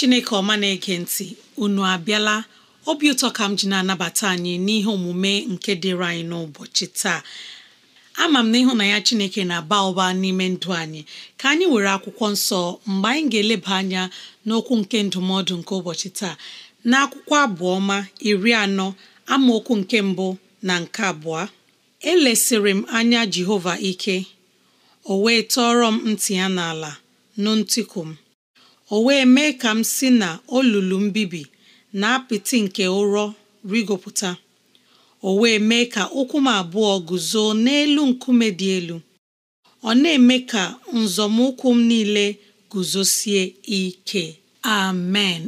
chineke ọma na-ege ntị unu abịala obi ụtọ ka m ji na-anabata anyị n'ihe omume nke dịrị anyị n'ụbọchị taa ama m na ya chineke na-aba ụba n'ime ndụ anyị ka anyị were akwụkwọ nsọ mgbe anyị ga-eleba anya n'okwu nke ndụmọdụ nke ụbọchị taa na akwụkwọ abụọma iri anọ amaokwu nke mbụ na nke abụọ elesịrị m anya jehova ike o wee tọọrọ m ntị ya n'ala nụ ntịkụ m o wee mee ka m si na olulu mbibi na apịtị nke ụrọ rigopụta o wee mee ka ụkwụ m abụọ guzo n'elu nkume dị elu ọ na-eme ka nzọmụkwụ m niile guzosie ike amen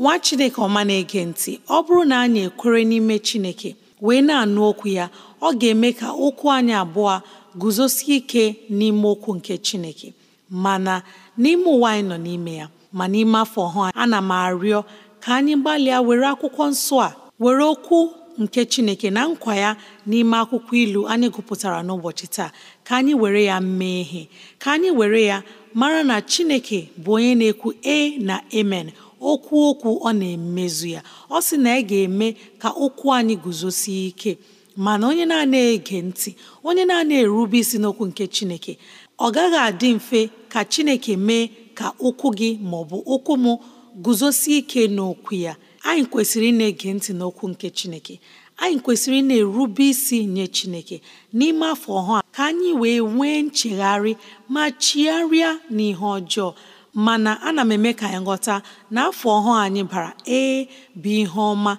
nwa chineke ọma na-ege ntị ọ bụrụ na anyị ekwere n'ime chineke wee na-anụ okwu ya ọ ga-eme ka okwu anyị abụọ guzosie ike n'ime okwu nke Chineke mana n'ime ụwa anyị nọ n'ime ya ma n'ime afọ ọhụụ ana m arịọ ka anyị gbalịa were akwụkwọ nsọ a were okwu nke Chineke na nkwa ya n'ime akwụkwọ ilu anyị gụpụtara n'ụbọchị taa ka anyị were ya mee ihe ka anyị were ya mara na Chineke bụ onye na-ekwu e na amen okwu okwu ọ na-emezu ya ọ sị na ị ga-eme ka okwu anyị guzosie ike mana onye na-ege ntị onye na-erube isi n'okwu nke Chineke ọ gaghị adị mfe ka Chineke mee ka ụkwụ gị ma ọ bụ ụkwụ m guzosie ike n'okwu ya anyị kwesịrị ị na-ege ntị n'okwu nke Chineke anyị kwesịrị ị na-erube isi nye Chineke n'ime afọ ọhụụ ka anyị wee nwee nchegharị ma chigharịa n'ihe ọjọọ mana ana m eme ka anyị ghọta na afọ ọhụụ anyị bara ee bụ ihe ọma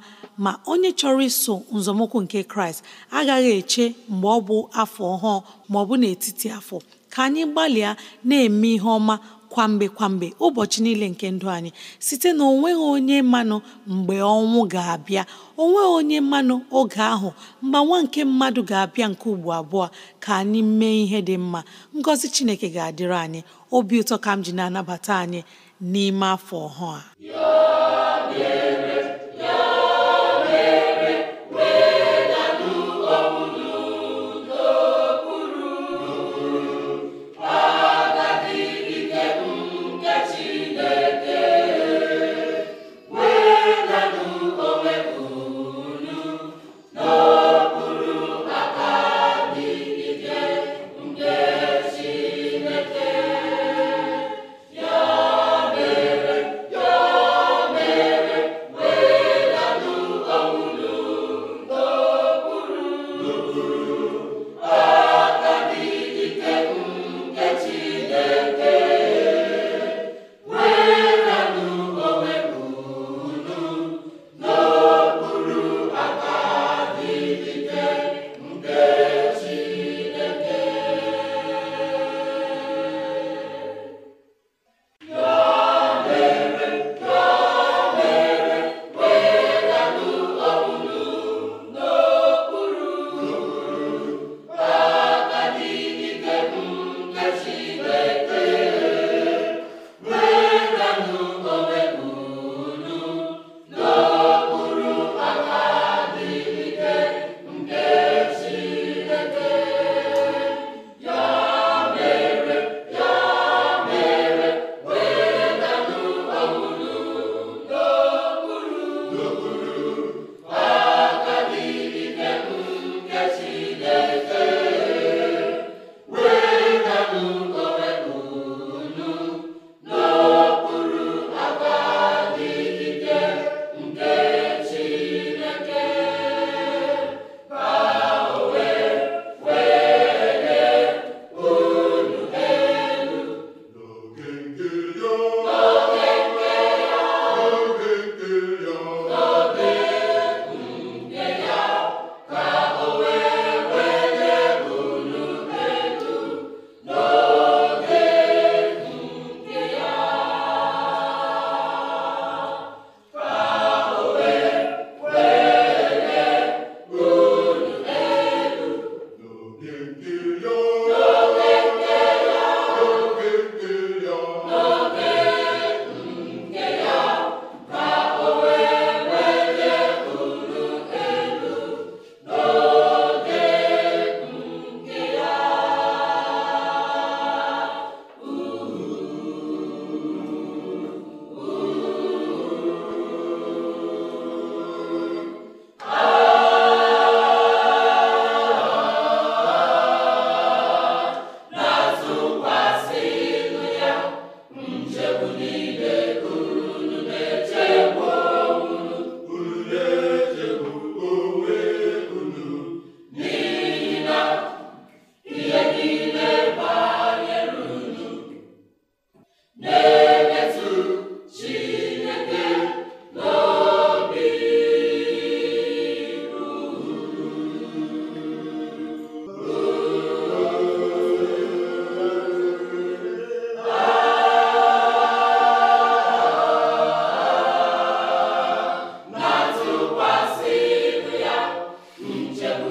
ma onye chọrọ iso nzọmụkwụ nke kraịst agaghị eche mgbe ọ bụ afọ ọhụụ ma ọ bụ n'etiti afọ ka anyị gbalịa na-eme ihe ọma kwamgbe kwamgbe ụbọchị niile nke ndụ anyị site na onweghị onye mmanụ mgbe ọnwụ ga-abịa onweghị onye mmanụ oge ahụ nwa nke mmadụ ga-abịa nke ugbo abụọ ka anyị mee ihe dị mma ngọzi chineke ga-adịrị anyị obi ụtọ ka m ji na-anabata anyị n'ime afọ ọhụụ a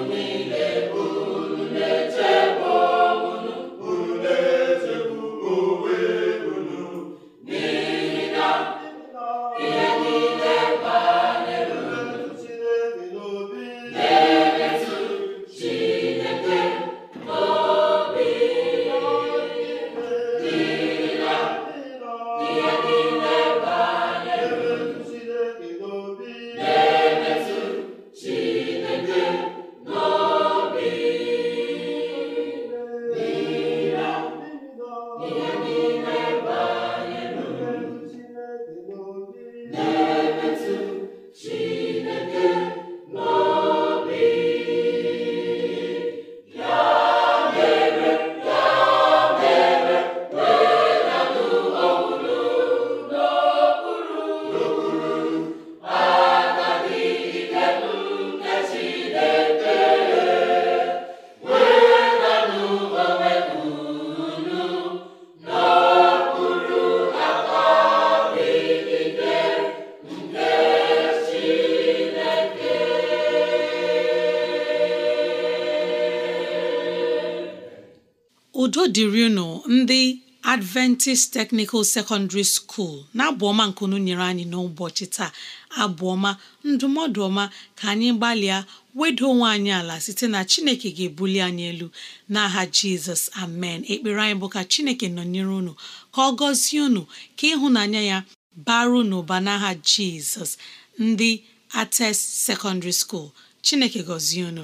niile dịrị unu ndị Adventist Technical Secondary School na-abụ ọma unu nyere anyị n'ụbọchị taa abụọma ọma ndụmọdụ ọma ka anyị gbalịa wedo onwe anyị ala site na Chineke ga-ebuli anyị elu n'aha Jizọs amen ekpere anyị bụ ka Chineke nọnyere unu ka ọ gọzie unu ka ịhụnanya ya baru n'ụba n'aha Jizọs ndị Ates Secondary School Chineke gọzie unu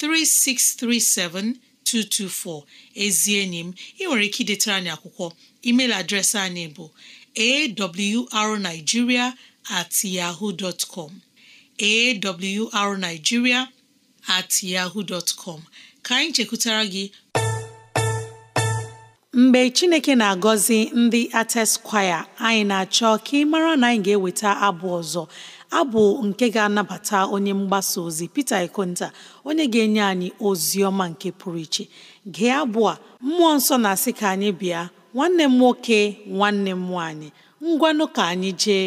3637224 ezi enyi m ị nwere ike idetara anyị akwụkwọ email adreesị anyị bụ arigiria at yahoo at yahoo dot ka anyị chekwutara gị mgbe chineke na-agọzi ndị Artist kwaya anyị na-achọ ka ị mara na anyị ga-eweta abụ ọzọ abụ nke ga-anabata onye mgbasa ozi Peter Ikonta onye ga-enye anyị ozi ọma nke pụrụ iche gee abụ a mmụọ nsọ na-asị ka anyị bịa nwanne m nwoke nwanne m nwaanyị ngwanụ ka anyị jee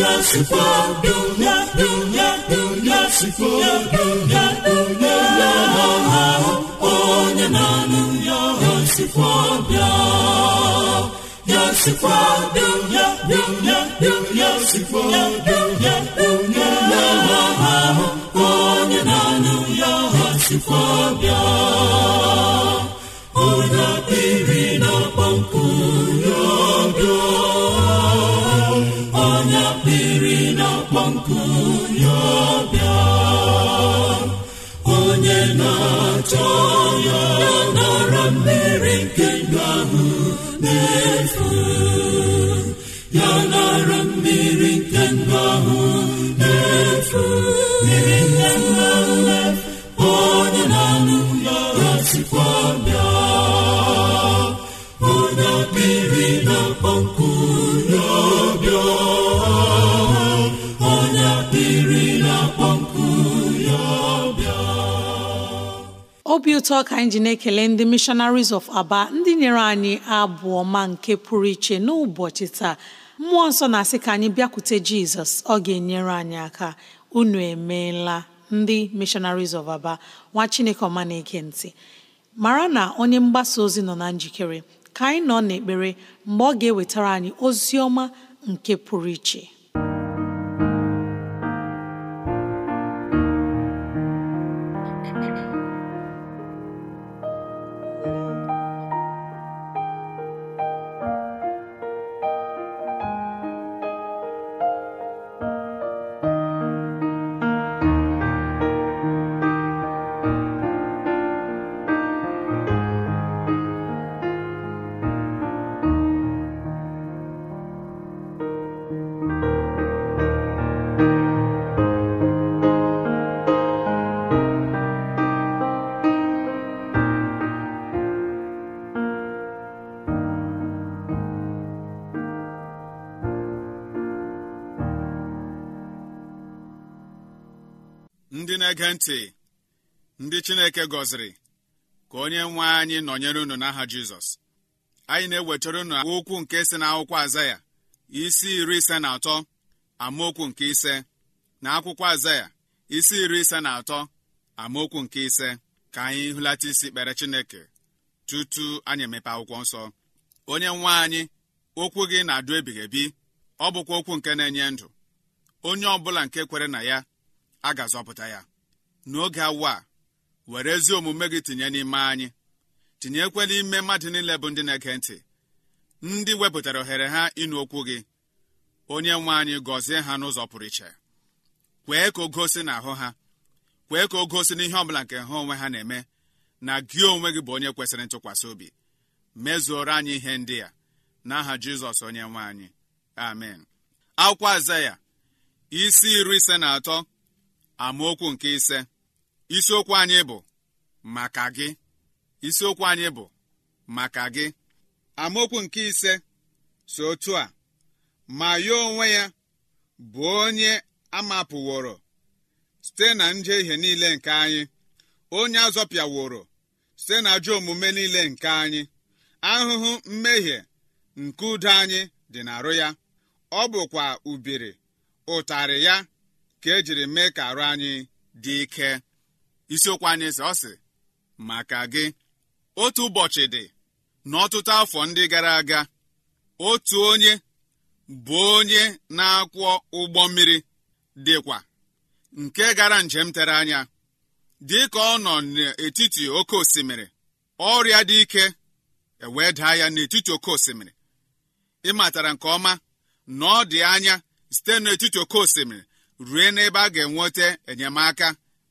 ya sikwa dunya dunya dunya sikwa dunya dunya ya ahụ onye na-anụ ya ya sikwa bịa ya ya onye na-anụ ya ya sikwa bịa onye biri na kpọmkwụ ya nara obi ụtọ ka anyị ji na-ekele ndị missionaries of aba ndị nyere anyị abụ ọma nke pụrụ iche n'ụbọchị taa mmụọ nsọ na-asị ka anyị bịakwute jizọs ọ ga-enyere anyị aka unu emeela ndị missionaries of aba nwa chineke ọma na-ege mara na onye mgbasa ozi nọ na njikere ka anyị nọ n'ekpere mgbe ọ ga-ewetara anyị ozi ọma nke pụrụ iche ndị na-ege ntị ndị Chineke gọziri ka onye nwe anyị nọnyere unu n'aha Jizọs anyị na-ewetara unu okwu nke si n'akwụkwọ Azaya isi iri ise na atọ amaokwu nke ise na akwụkwọ Azaya isi iri ise na atọ amaokwu nke ise ka anyị hụlata isi kpere Chineke tutu anyị emepe akwụkwọ nsọ onye nwe anyị okwu gị na-adụ ebighị ebi ọ bụkwa okwu nke na-enye ndụ onye ọ bụla nke kwere na ya a ga-azọpụta ya n'oge awa were ezi omume gị tinye n'ime anyị tinyekwela ime mmadụ niile bụ ndị na-ege ntị ndị wepụtara ohere ha ịnụ okwu gị onye nwe anyị gọzie ha n'ụzọ pụrụ iche kwee ka o gosi na ahụ ha kwee ka o gosi n'ihe ọbụla nke ha onwe ha na-eme na gị onwe gị bụ onye kwesịrị ntụkwasị obi mezuoro anyị ihe ndị a n'aha jizọs onye nwe anyị amen akwụkwọ azaya isi iri ise na atọ amaokwu nke ise isiokwu anyị bụ maka gị isiokwu anyị bụ maka gị amaokwu nke ise so otu a ma ya onwe ya bụ onye amapụworo site na njehie niile nke anyị onye azọpịaworo site na ajọ omume niile nke anyị ahụhụ mmehie nke udo anyị dị n'arụ ya ọ bụkwa ubiri ụtarị ya ka ejiri mee ka arụ anyị dị ike isiokwu anyị sị ọ sị maka gị otu ụbọchị dị n'ọtụtụ afọ ndị gara aga otu onye bụ onye na-akwọ ụgbọ mmiri dịkwa nke gara njem tere anya dị ka ọ nọ n'etiti oke osimiri ọrịa dị ike ewee daa ya n'etiti oke osimiri ịmatara nke ọma na dị anya site n'etiti oke osimiri rue n'ebe a ga-enweta enyemaka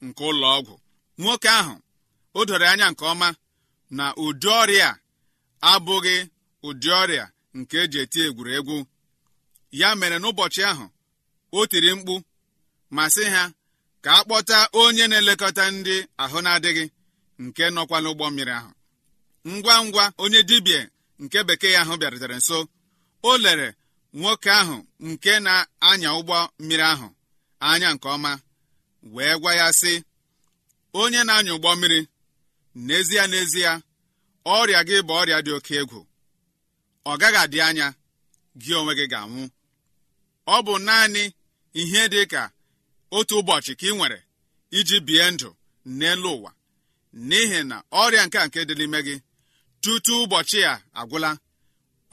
nke ụlọ ọgwụ nwoke ahụ o doro anya nke ọma na ụdị ọrịa abụghị ụdị ọrịa nke eji eti egwuregwu ya mere n'ụbọchị ahụ o tiri mkpu ma sị ha ka a kpọta onye na-elekọta ndị ahụ na-adịghị nke nọkwa n'ụgbọ mmiri ahụ ngwa ngwa onye dibịa nke bekee ahụ bịarutere nso o lere nwoke ahụ nke na-anya ụgbọ mmiri ahụ anya nke ọma wee gwa ya sị onye na-anya ụgbọ mmiri n'ezie n'ezie ọrịa gị bụ ọrịa dị oke egwu ọ gaghị adị anya gị onwe gị ga-anwụ ọ bụ naanị ihe dị ka otu ụbọchị ka ị nwere iji bie ndụ n'elu ụwa n'ihi na ọrịa nke a nke dị n'ime gị tutu ụbọchị a agwụla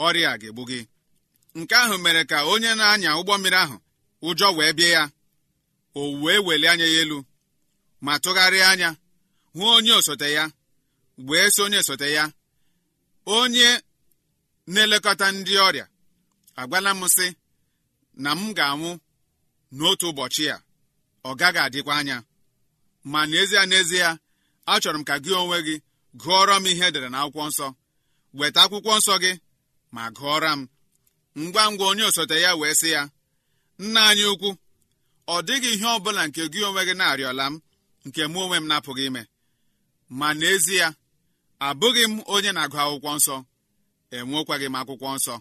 ọrịa ga-egbu gị nke ahụ mere ka onye na-anya ụgbọ mmiri ahụ ụjọ wee bie ya o wee welie anya ya elu ma tụgharịa anya hụ onye osote ya wee so onye osote ya onye na-elekọta ndị ọrịa agwala m sị na m ga-anwụ n'otu ụbọchị a ọ gaghị adịkwa anya ma n'ezie n'ezie achọrọ m ka gị onwe gị gụọrọ m ihe edere na akwụkwọ nsọ weta akwụkwọ nsọ gị ma gụọra m ngwa ngwa onye osote ya wee sị ya nna anyị ukwu ọ dịghị ihe ọ bụla nke gị onwe gị na-arịọla m nke mụ onwe m na-apụghị ime ma n'ezie abụghị m onye na-agụ akwụkwọ nsọ enwekwaghị m akwụkwọ nsọ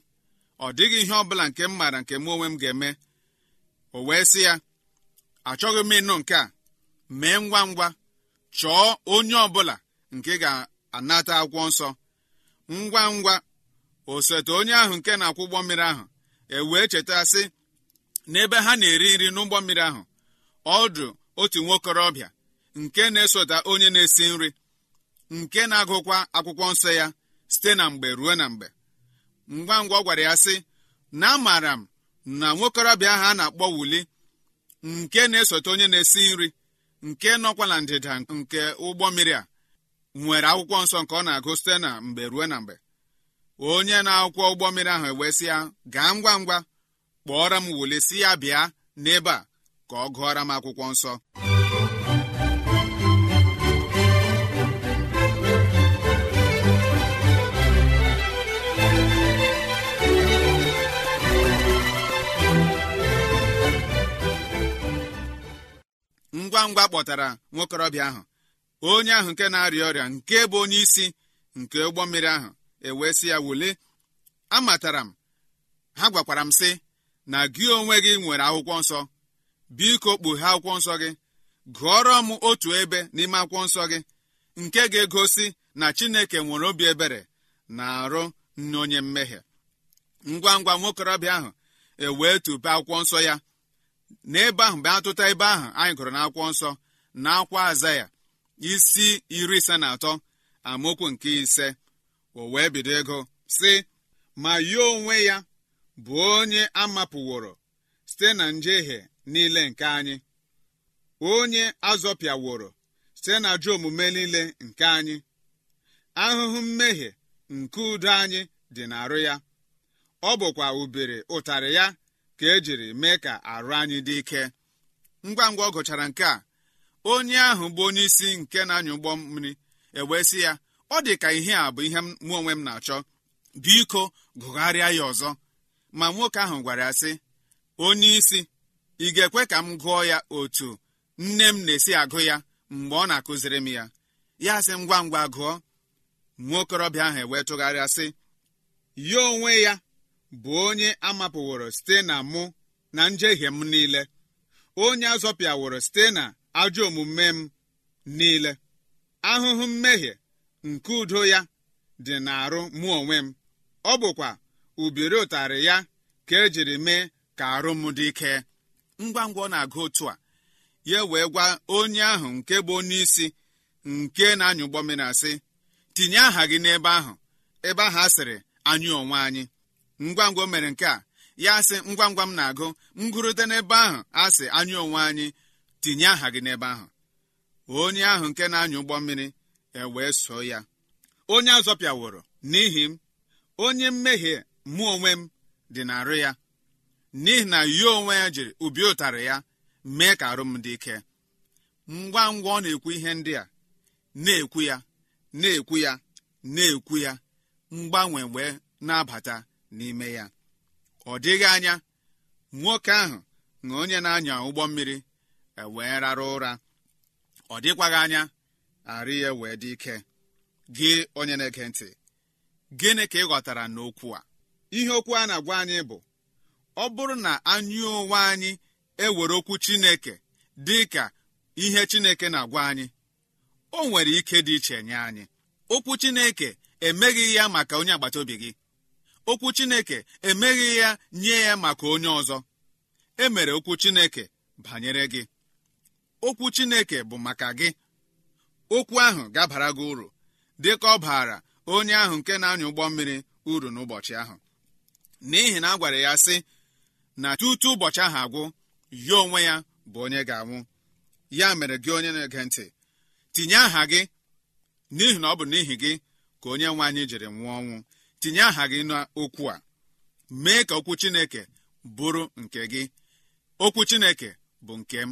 ọ dịghị ihe ọ bụla nke m maara nke mụ onwe m ga-eme o wee sị ya achọghị m ịnụ nke a mee ngwa ngwa chọọ onye ọ bụla nke ga-anata akwụkwọ nsọ ngwa ngwa osote onye ahụ nke na-akwụ ụgbọ mmiri ahụ e wee cheta sị n'ebe ha na-eri nri n'ụgbọ mmiri ahụ ọdụ otu nwokorobịa nke na-esota onye na-esi nri nke na-agụkwa akwụkwọ nsọ ya site na mgbe ruo na mgbe ngwa ngwa ọ gwara ya sị na amaara m na nwokorobịa ahụ a na-akpọ wuli nke na-esote onye na-esi nri nke nọkwa na ndịda nke ụgbọ mmiri a nwere akwụkwọ nsọ nke ọ na-agụ site na mgbe ruo na mgbe onye na-akwụkwọ ụgbọ mmiri ahụ ewesịa gaa ngwa ngwa kpọọrọ m wole si ya bịa n'ebe a ka ọ gụọra m akwụkwọ nsọ ngwa ngwa kpọtara nwokorobịa ahụ onye ahụ nke na-arịa ọrịa nke bụ onye isi nke ụgbọ mmiri ahụ ewee sị ya wule amatara m ha gwakwara m sị na gị onwe gị nwere akwụkwọ nsọ biko kpughe akwụkwọ nsọ gị gụọrọ m otu ebe n'ime akwụkwọ nsọ gị nke ga-egosi na chineke nwere obi ebere na-arụ n'onye mmehie ngwa ngwa nwokorobịa ahụ ewee tupe akwụkwọ nsọ ya n'ebe ahụ mgbe atụta ebe ahụ anyị gụrụ na nsọ na akwa aza ya isi iri ise na atọ amaokwu nke ise o wee bido ego si ma ya onwe ya bụ onye a mapụworo site na njehie niile nke anyị onye azọpịaworo site na ajọ omume niile nke anyị ahụhụ mmehie nke udo anyị dị n'arụ ya ọ bụkwa ubere ụtarị ya ka ejiri mee ka arụ anyị dị ike ngwa ngwa ọ gụchara nke a onye ahụ bụ onye isi nke na-anya ụgbọ mmiri ewee sị ya ọ dị ka ihe a bụ ihe mụ onwe m na-achọ biko gụgharịa ya ọzọ ma nwoke ahụ gwara ya sị onye isi ị ga-ekwe ka m gụọ ya otu nne m na-esi agụ ya mgbe ọ na-akụziri m ya ya sị ngwa ngwa gụọ Nwoke okorobịa ahụ ewee sị ya onwe ya bụ onye amapụworo site na mụ na njehie m niile onye azọpịaworo site na ajọ omume m niile ahụhụ mmehie nke udo ya dị n'arụ mụ onwe m ọ bụkwa ubiri ụtarị ya ka ejiri mee ka arụ m dị ike ngwa ngwa ọ na-agụ otu a ya wee gwa onye ahụ nke bụ onye isi nke na-anya ụgbọ mmiri asị tinye aha gị n'ebe ahụ ebe ahụ a sịrị anyị onwe anyị ngwa ngwa o mere nke a ya sị ngwa ngwa m na-agụ ngụrụte n'ebe ahụ asị anyị onwe anyị tinye aha gị n'ebe ahụ onye ahụ nke na-anya ụgbọ mmiri ewee so ya onye azọpịaworo n'ihi m onye mmehie mụ onwe m dị na-arụ ya n'ihi na ya onwe ya jiri ubi ụtarị ya mee ka arụ dị ike ngwa ngwa ọ na-ekwu ihe ndị a na-ekwu ya na-ekwu ya na-ekwu ya mgbanwe wee na-abata n'ime ya ọ dịghị anya nwoke ahụ na onye na-anya ụgbọ mmiri e wee rara ụra ọ dịkwaghị anya arụ ya wee dị ike gị onye na-ege ntị gịnị ka ị ghọtara n'okwu a ihe okwu a na-agwa anyị bụ ọ bụrụ na anyị onwe anyị ewere okwu chineke dị ka ihe chineke na-agwa anyị o nwere ike dị iche nye anyị okwu chineke emeghị ya maka onye agbata obi gị okwu chineke emeghị ya nye ya maka onye ọzọ e mere okwu chineke banyere gị okwu chineke bụ maka gị okwu ahụ gabara gị uru dịka ọ baara onye ahụ nke na-anya ụgbọ mmiri uru n'ụbọchị ahụ n'ihi na a gwara ya sị na tutu ụbọchị ahụ agwụ ya onwe ya bụ onye ga-anwụ ya mere gị onye na-ege ntị tinye aha gị n'ihi na ọ bụ n'ihi gị ka onye nwe anyị jiri nwụọ ọnwụ tinye aha gị n'okwu a mee ka okwu chineke bụrụ nke gị okwu chineke bụ nke m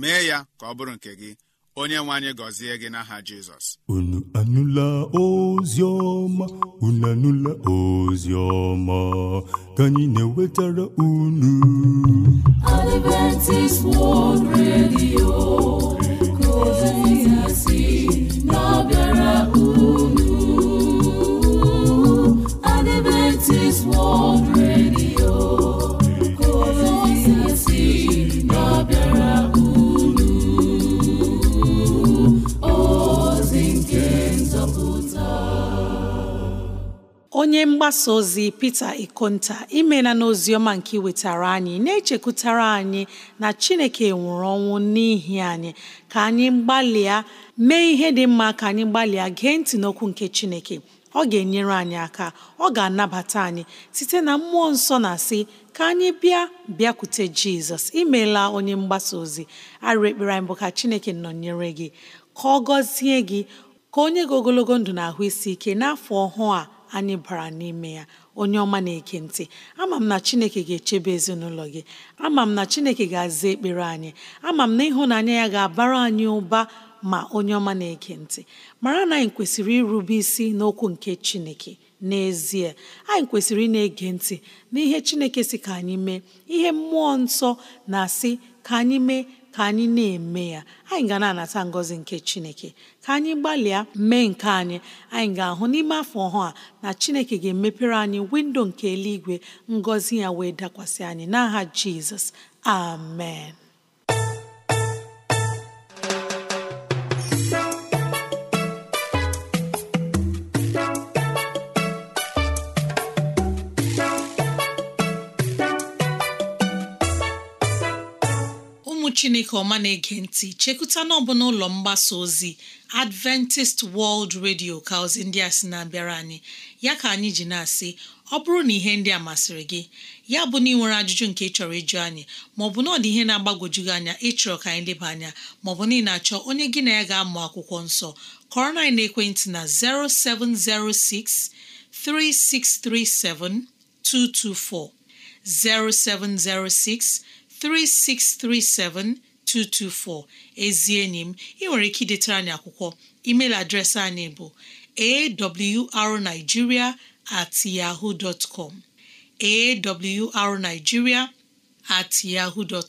mee ya ka ọ bụrụ nke gị onye nwe anyị gọzie gị n'aha jizọs Onye anụla ozi ọma unu anụla ozi ọma ka anyị na-ewetara unu Adventist World Radio nke ozi si na-abịara unu Adventist World onye mgbasa ozi Peter Ikonta imela n'ozi nke wetara anyị na-echekwutara anyị na Chineke nwụrụ ọnwụ n'ihi anyị ka anyị gbalịa mee ihe dị mma ka anyị gbalịa gee ntị n'okwu nke Chineke ọ ga-enyere anyị aka ọ ga-anabata anyị site na mmụọ nsọ na sị ka anyị bịa bịakwute Jizọs imela onye mgbasa ozi arịrị ekpere anyị bụ ka Chineke nọnyere gị ka ọ gọzie gị ka onye gị ogologo ndụ na ahụ isi ike n'afọ ọhụụ a anyị bara n'ime ya onye ọma na-eke ntị ama m na chineke ga-echebe ezinụlọ gị ama m na chineke ga-aza ekpere anyị ama m na ịhụnanya ya ga-abara anyị ụba ma onye ọma na-eke ntị mara na anyị kwesịrị irube isi n'okwu nke chineke n'ezie anyị kwesịrị ị na-ege ntị n'ihe chineke si ka anyị mee ihe mmụọ nsọ na-asị ka anyị mee ka anyị na-eme ya anyị ga na-anata ngọzi nke chineke ka anyị gbalịa mee nke anyị anyị ga-ahụ n'ime afọ ọhụụ a na chineke ga-emepere anyị windo nke eluigwe ngọzi ya wee dakwasị anyị n'aha jizọs amen chineke ọma na-ege ntị chekụta na ọbụla ụlọ mgbasa ozi adventist world radio ka ozi ndị a sị na-abịara anyị ya ka anyị ji na-asị ọ bụrụ na ihe ndị a masịrị gị ya bụ na ị nwere ajụjụ nke ịchọrọ ịjụ anyị maọbụ na ọ dị ihe na-agbagwoju gị anya ịchọrọ ka anyị leba anya maọbụ na ị na-achọ onye gị na ya ga-amụ akwụkwọ nsọ kọrọ na ekwentị na 0706 3637 224 0706 3637224 ezi enyi ị nwere ike idetara anyị akwụkwọ email adreesị anyị bụ awrnigeria at yahoo dot com at yahoo dot